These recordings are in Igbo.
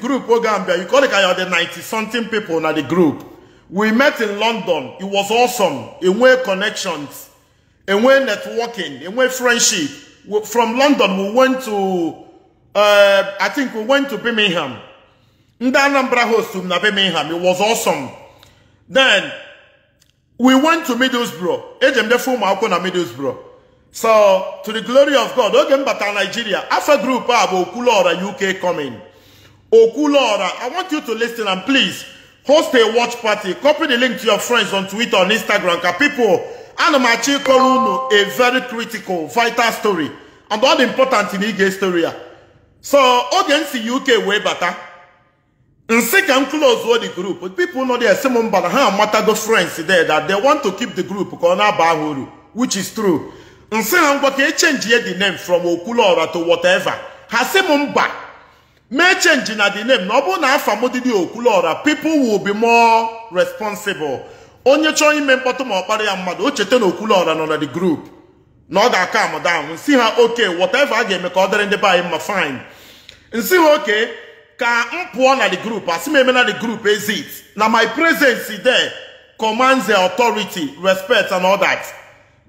group wey oh, gambia you call it kaya the ninety something people na the group we met in london it was awesome enwe connections enwe networking enwe friendship from london we went to uh, i think we went to birmingham ndị anambra host na birmingham it was awesome then we went to middlesbrough ejemdefe ụmụ akwụkwọ na middlesbrough so to the glory of god oge m batara nigeria afa group a bụ okwuluọra uk coming Okulora. I want you to listen and please host a watch party. Copy the link to your friends on Twitter, and Instagram. People, Anamachi Kolunu, a very critical, vital story. And all important in Ige story. So, audience in UK way better. Nsị ka m close all the group. People know are some mbara ha go friends there that they want to keep the group ka ọ which is true. Nsị say ngwa ka e change the name from Okulora to whatever. Ha sị May change na the name na ọ bụrụ na afa m dị Okwuluora people will be more responsible onye chọọ ime mkpọtụ ma ọ kpara ya mmadụ o oh, cheta na Okwuluora nọ na the group na ọ ga-aka amụdanwụ si ha okay. whatever a ga-eme ka ọ dịrị ndị be fine nsi ha okay. ka m pụọ na the group asị me eme na the group is it? na my presence there commands the authority respect and all that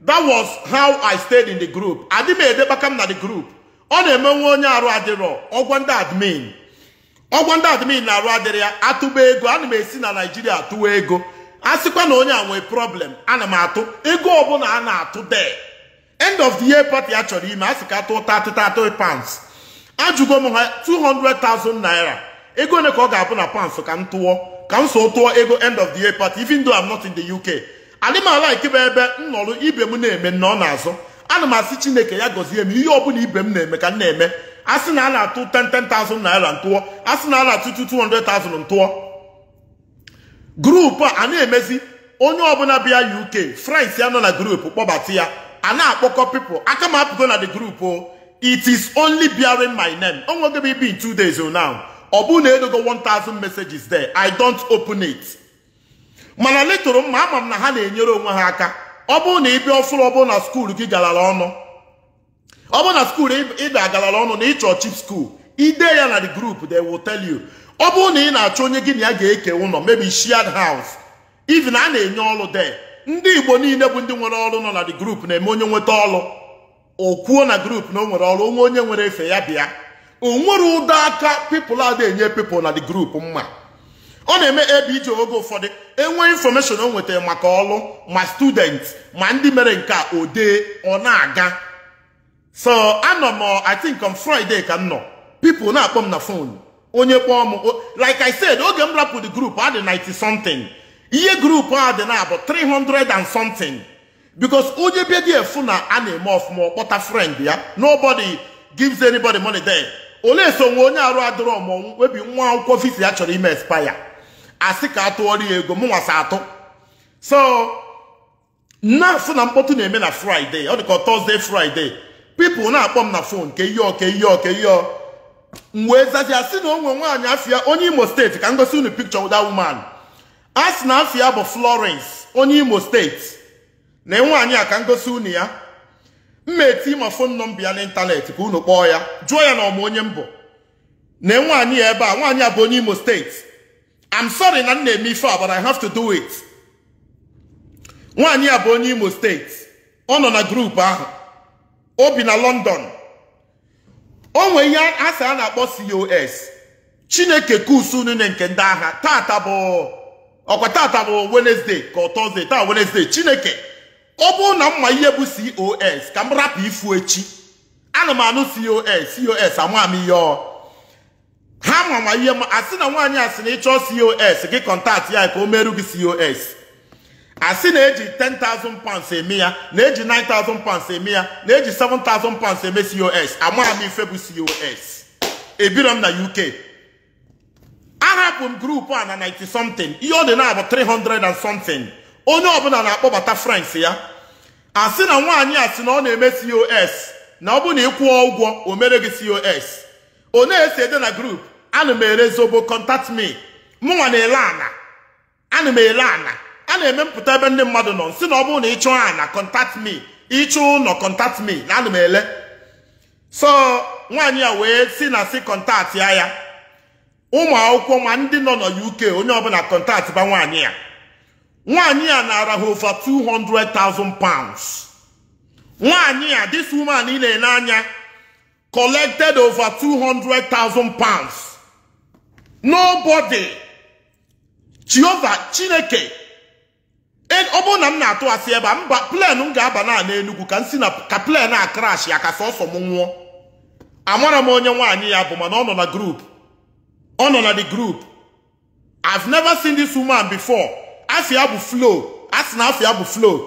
that was how i stayed in the group adị m edebaka m na the group ọ na nwa onye arụ adịrọ ọgwọ ndị admin ọgwọ ndị admin na-arụ adịrị ya atụba ego ana m esi na naijiria atụwa ego a sịkwa na onye a nwee problem ana m atụ ego ọbụla a na-atụ de end of the year party a chọrọ ime a sị ka atụ 33 pounds ajụgo m ha 200,000 naira ego ole ka ọ ga-abụ na pounds ka m tụọ ka m so tụọ ego end of the year party even though I'm not in the UK adị m ala ebe m ibe m na-eme na ọ na-azụ ana m asị chineke ya gọzie m ihe ọbụla ibe m na-eme ka m na-eme a sị na a na-atụ 10,000 naira ntụọ a sị na a na-atụ 200,000 ntụọ grupu a na-emezi onye ọbụla bịa uk france ya nọ na grupu kpọbata ya a na-akpọkọ pipụl aka m apụgo na the grupu it is only bearing my name onwego m ibi in two days now ọ bụ na edogo 1000 messages there i don't open it mana letụrụ mma ama m na ha na-enyere onwe ha aka ọ bụrụ na ịbịa ọfụrụ ọ bụrụ na skuul gị galara ọnụ ọ bụrụ na skuul ịbịa galara ọnụ na ịchọ chip skuul ide ya na the group they will tell you ọ bụrụ na ị na-achọ onye gị na ya ga-eke ụlọ maybe shared house even a na-enye ọrụ de ndị igbo niile bụ ndị nwere ọrụ nọ na the group na-eme onye nweta ọrụ o kwuo na group na o nwere ọrụ onwe onye nwere efe ya bịa o nwere ụdọ aka pipụl a na-enye pipụl na the group mma ọ na-eme ebe oge ụfọdụ enwee infọmeshọn o nwetara maka ọlụ ma student ma ndị mere nke ode o ọ na-aga so anọ m I think on Friday ka m nọ people na-akpọ m na fon onye kpọọ m like I said oge m rapụ the group ad 90 something ihe group a dị na abụ 300 and something because onye bịa gị efu na a na-eme ọfụma ọkpọta friend ya nobody gives anybody money there ole so nwe onye arụ adịrọ mọnwụ webi nwa akwụkwọ visa ya chọrọ ime expire asị ka atụọrọ ya ego mụ nwasa atụ so na-asị na mkpọtụ na-eme na fraịde ọ dịka tọzdee fraịde pipụl na-akpọ m na fon ka ihe ọka ihe ọka ihe ọ m wee sị na onwe nwaanyị afia onye imo steeti ka m gosi unu pikchọ wụda wuman a sị na afịa bụ florence onye imo steeti na nwaanyị a ka m gosi unu ya mma eti ma fon nọmba ya n'ịntanetị ka unu kpọọ ya jụọ ya na ọmụ onye mbụ na nwaanyị ya ebe a nwaanyị a bụ onye imo steeti I'm sorry na m na-eme ife a but I have to do it nwaanyị a bụ onye Imo steeti ọ nọ na grupu ahụ o bi na London o nwe ihe asị a na-akpọ COS Chineke kusu nne nke ndị agha tata bụ ọkwa tata bụ Wednesday ka ọ Thursday taa Wednesday Chineke ọ bụrụ na mma ihe bụ COS ka m rapụ ifu echi ana m anụ COS COS ama m ihe ọ ha mama ihe ma asị na nwaanyị asị na ịchọọ cos gị kọntaktị ya ka o meru gị cos asị na-eji 10,000 pounds eme ya na-eji 9,000 pounds eme ya na-eji 7,000 pounds eme cos amara ife bụ cos ebiro m na uk ahapụ m grupu a na 90 something ihe ọ dị na abụ 300 and something onye ọbụla na-akpọbata frans ya asị na nwaanyị asị na ọ na-eme cos na ọ bụ na ịkwụọ ụgwọ o mere gị cos onye esi ede na grup anụ m ere zobo contact me mụnwa na-ele ana ana m ele ana a na-emepụta ebe ndị mmadụ nọ si na ọ bụrụ na ịchụ ana contact me ịchụ ụlọ kọntat mi na anụ m ele so nwaanyị a wee si na si kọntat ya ya ụmụ akwụkwọ ma ndị nọ na UK onye ọbụla kọntat ba nwaanyị ya nwaanyị a nara ha over 200 pounds nwaanyị a this woman ị na-ele anya collected over 200,000 pounds. Nobody. Jehovah Chineke. En ọbụ na m na-atụ asị ebe a mba plen m ga-aba na enugu ka nsi na ka plen a crash ya ka sọsọ m nwụọ amara m onye nwaanyị ya bụ mana ọ nọ na group ọ nọ na the group I've never seen this woman before afia bụ flow Asị na afia bụ flow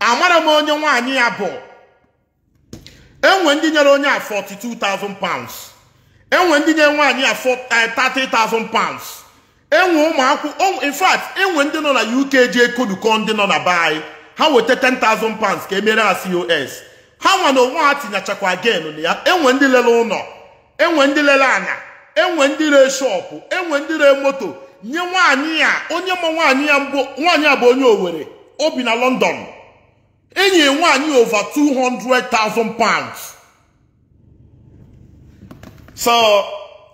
amara m onye nwaanyị ya bụ enwe ndị nyere onye a 42,000 pounds enwe ndị nyere nwaanyị a 30,000 eh, pounds enwe ụmụakwụkwọ in fact enwe ndị nọ na UK ji ekoduko ndị nọ na be ha weta 10,000 pounds ka emere ha COS ha nwa na onwe ha tinyechakwa again na ya enwe ndị lere ụlọ enwe ndị lere ana enwe ndị ree shọpụ enwe ndị ree moto nye nwaanyị a onye ma nwaanyị ya mbụ nwaanyị a bụ onye Owerri obi na London enyi nwaanyị over 200,000 pounds so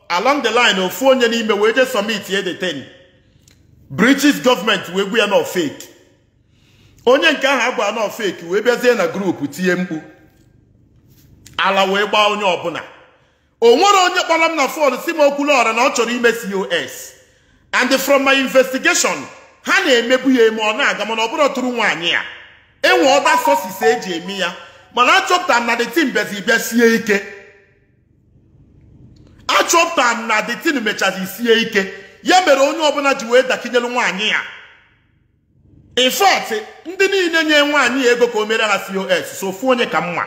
along the line ofu onye n'ime wee submit summit ye the ten british government wee gwu ya na fake onye nke ahụ agba na fake wee bịazie na grupu tinye mkpu ala wee gbaa onye ọbụla o nwere onye kpọrọ m na fon si m na ọ chọrọ ime cos and from my investigation ha na-emebu ya eme ọ na-aga mana ọ bụrụ tụrụ nwaanyị ya enwe ọba sosis eji eme ya mana achọpụta m na detin bezi bịa sie ike achọpụta na the detin mechazi sie ike ya mere onye ọbụla ji wee dakinyelu nwaanyị ya in ndị niile nye nwaanyị ego ka o mere ha cos so onye ka mma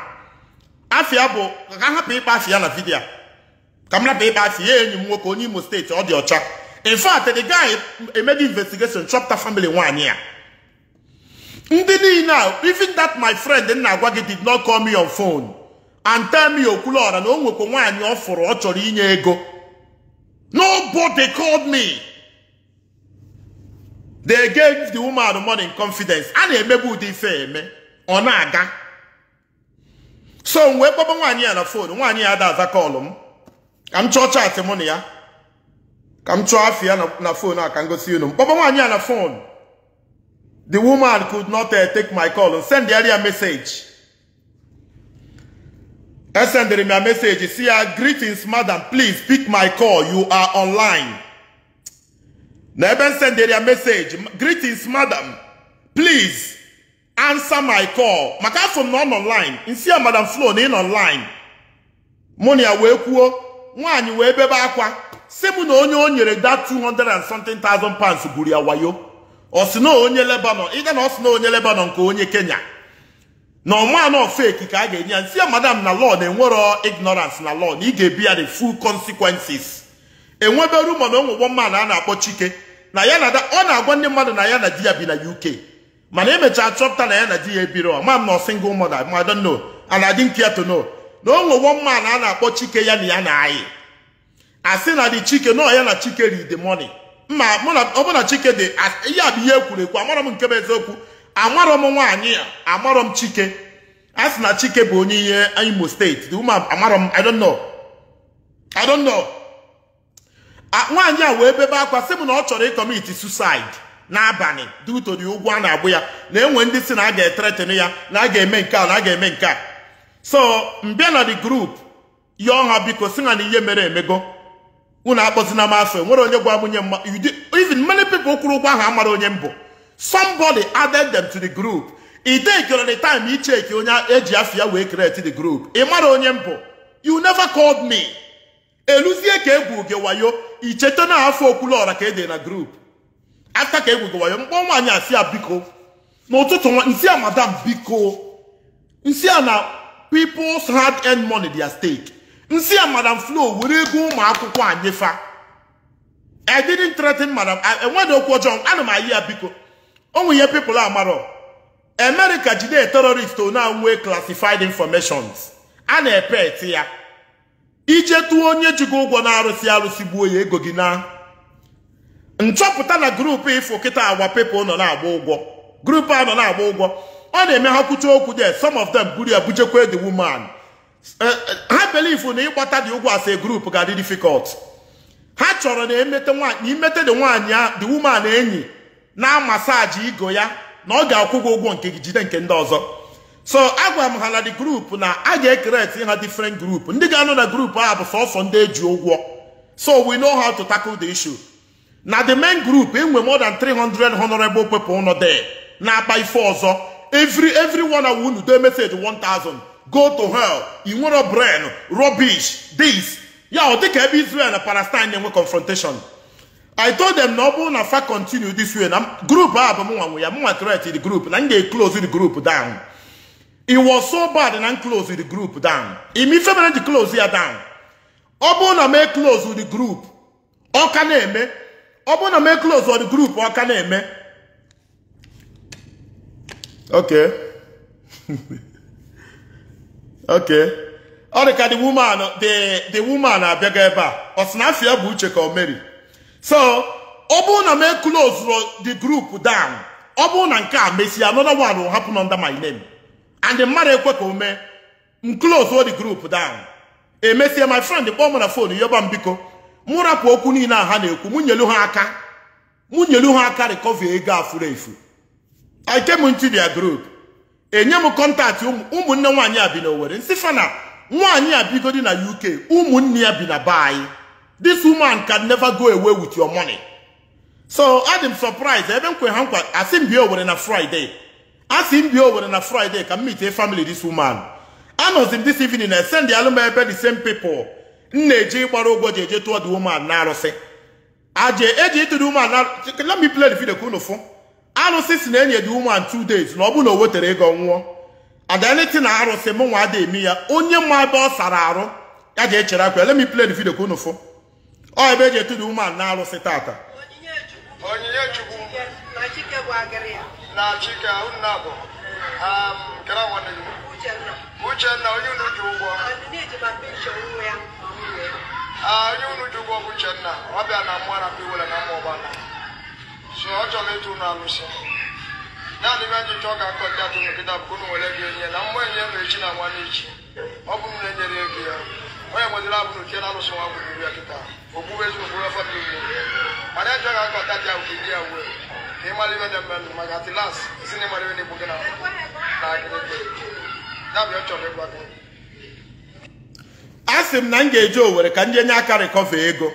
Afia bụ ka hapụ ịkpa afia na vidiyo ka m rapụ ịkpa afia ya enyi m nwoke onye imo steeti ọ dị ọcha in fact the guy emego investigation chọpụta family nwaanyị ya ndị niile a even that my friend nna-agwa gị did not call me on phone and tell me okwuluọra na o nwekwa nwaanyị ọ fụrụ ọ chọrọ inye ego nobody called me they gave the woman money in confidence a na-emegbu ụdị ife eme ọ na-aga so m wee kpọba nwaanyị ya na fon nwaanyị ya ada aza kọlụ m ka m chọọ chaatị mụ na ya ka m chọọ afọ ya na fon a ka m gosi unu m kpọba nwaanyị ya na fon The woman could not uh, take my call. Send the area message. I send the a message. See her, greetings, madam. Please pick my call. You are online. Never send the a message. Greetings, madam. Please answer my call. My call from non online. In see madam Flo, in online. Money away kuo. Nwanyi webe bakwa. Semu na onye onyere that 200 and something thousand pounds to guria wayo. ọsị onye lebanon i gana ọsị onye lebanon ka onye kenya na ọmanọ feki ka a ga-enye ya nsi ya madam na law na enwero ignorance na lọ na ị ga-ebi ya the full consequences enwebe rumọ na onwugbo mmanụ a na-akpọ chike na ya na ọ na-agwa ndị mmadụ na ya na di ya bi na uk mana emechaa chọpụta na ya na di ya ebiro mam na single mada ma no ana dị nke to no na onwugbo mmanụ a na-akpọ chike ya na ya na anyị asi na di chike nọ ya na chike ri the money ma ọbụna chike dị ihe a bụ ihe ekwuru ekwu amarọ m nke bụ eziokwu amarọ m nwaanyị a amarọ m chike a sị na chike bụ onye ihe imo steeti amarọ m I I nwaanyị a wee bebe akwa sị m na ọ chọrọ ịkọmiti suicide n'abalị due to ụgwọ a na-agbụ ya na-enwe ndị si na a ga-etretin ya na a ga-eme nke a na a ga-eme nke a so mbịa na the group yọọ ha biko si na ihe mere emego unu akpọzina m afa nwere onye gwa m nye mma even many people kwuru ụgwọ ahụ amara onye mbụ somebody added them to the group idekere the time icheki onye eji afia wee create the group ị mara onye mbụ you never called me eluzie ka egwu gị wayo icheta na afọ okwulọra ka ede na group afta ka egwu gị wayo mkpọ nwaanyị asị ya biko n'ụtụtụ nsi a madam biko nsi a na peoples hard earned money their stake nsi a madam flo were ego ụmụ akwụkwọ anyị fa i didn't threaten madam enweghị okwu ọjọọ ana m ayi ya biko onwe ihe pipụl amarọ america jide terorist na nwe classified informations a na-epe eti ya ije tụọ onye ji gị ụgwọ na-arụsị arụsị gbuo ya ego gị na nchọpụta na grupu ifo kịta agwa pepụl nọ na-agba ụgwọ grupu a nọ na-agba ụgwọ ọ na-eme ha kwucha okwu de some of them buru ya bujekwa the woman eh, eh, believe na ịgbata dị ụgwọ as a group ga-adị difficult ha chọrọ na emete nwanyị imete dị nwanyị a woman enyi na masaji igo ya na ọ ga-akwụ gị ụgwọ nke gị jide nke ndị ọzọ so agwa m ha na dị group na a ga ekeret ha different group ndị ga-anọ na group ahụ bụ sọsọ ndị eji ụgwọ so we know how to tackle the issue na the main group enwe more than 300 honorable people nọ there na-akpa ife ọzọ every every one hour do message 1000 go to hell ị nwero brain rubbish this ya ọ dịka ebe Israel na Palestine na-enwe confrontation I told them na ọ bụrụ na continue this way na group ah bụ mụnwa nwe ya mụnwa create the group na m ga-eclose the group down it was so bad na m close the group down imife mere ji close ya down ọ bụrụ e close m the group ọ ka na-eme ọ bụrụ na m e the group ọ ka na-eme okay okay ọ dị ka the woman the the woman abịago ebe a ọ sị na ya bụ uche ka ọ meri so ọ bụrụ na m eklozuru the group down ọ bụrụ na nke a mesịa another one will happen under my name and the mmadụ ekwe ka o mee m close the group down emesie my friend kpọọ m na fon yoba m biko mụ rapụ okwu niile a ha na-ekwu mụ nyelu ha aka mụ nyelu ha aka recover ego a furu efu I came into group enye m kọntaktị ụmụnne nwaanyị a bi na Owerri nsifana nwanyị nwaanyị a bigodi na UK ụmụnne ya bi na be anyị this woman can never go away with your money so adị m surprise ebe nkwe ha nkwa asị m bịa Owerri na Friday asị m bịa Owerri na Friday ka m meet family this woman anọzi m this evening na send alụm ebe the same people m na-eje ịgbara ụgwọ ji eje tụọ the woman na arụsị aje eji ịtụrụ woman na let me play the video ka unu fụ arụsị si na enye gị woman two days na ọ bụrụ na o wetara ego nwụọ adaniti na arụsị mụ nwa ada eme ya onye mma ebe ọ sara arụ ya ga echere akwa let me play ka ọ ebe eji etu the na arụsị tata um, ah, onye unu ji ụgwọ bụ uchenna ọ na mmụọ na na ọ chọrọ ịtụ alụsị naanị ga akọ bụ nwere gị na mgbe enye m echi na nwa n'echi ọ bụ na-enyere ego ya onye abụ na alụsị nwa ya kịta ya ya uwe na mmadụ a sị m na m ga-eje owere ka ndị enye aka rịkọva ego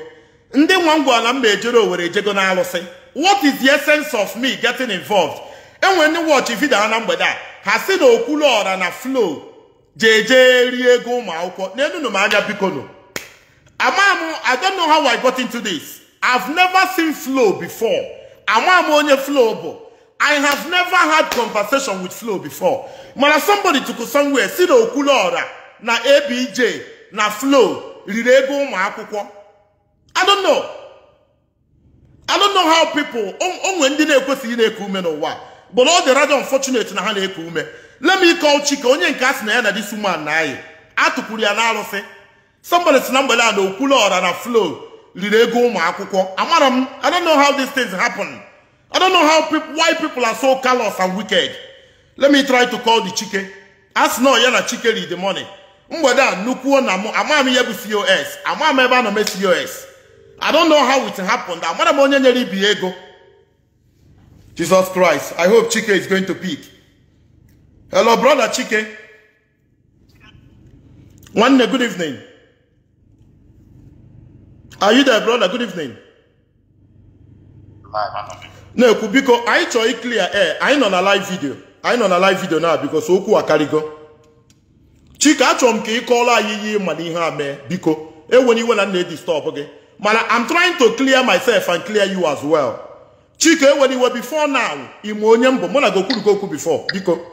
ndị nwa m gwara m ma ejere owere ejego na alụsị what is the essence of me getting involved enwere ndị wọchị vidio ha na mgbede a ha si na okwuluọra na flow jeje rie ego ụmụ akwụkwọ n'enunu m anya Biko ama m i don't know how i got into this i've never seen flow before amamu onye flow bụ i have never had conversation with flow before mana somebody took somewhere si na okwuluọra na abj na flow riri ego ụmụ akwụkwọ i don't know. I don't know how people onwe ndị na-ekwesịghị na-eku ume n'ụwa but ọ dị rather unfortunate na ha na-eku ume let me call Chike onye nke a sị na ya na this woman na anyị atụpụrụ ya n'arụsị somebody si na mgbede a na okwulu ọra na flow riri ego ụmụ akwụkwọ amara m I don't know how these things happen I don't know how people why people are so callous and wicked let me try to call the Chike a sị na ya na Chike ri the money mgbede a nnukwu na m amaghị m ihe bụ COS amaghị m ebe a nọ mee COS I don't know how it happened. That m onye nyere be ego. Jesus Christ. I hope Chike is going to pick. Hello, brother Chike. One good evening. Are you there, brother? Good evening. No, because biko anyị clear. iklia ee anyị nọ na live video anyị on a live video now because okwu akarịgo chike achọrọ m ka call kọọrọ anyị ihe ma na ihe a mee biko enwere iwe na nna edistọbụ gị mana I'm trying to clear myself and clear you as well. Chike when you were before now, ime onye mbụ mụ na okwu before biko